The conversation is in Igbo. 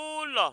ụlọ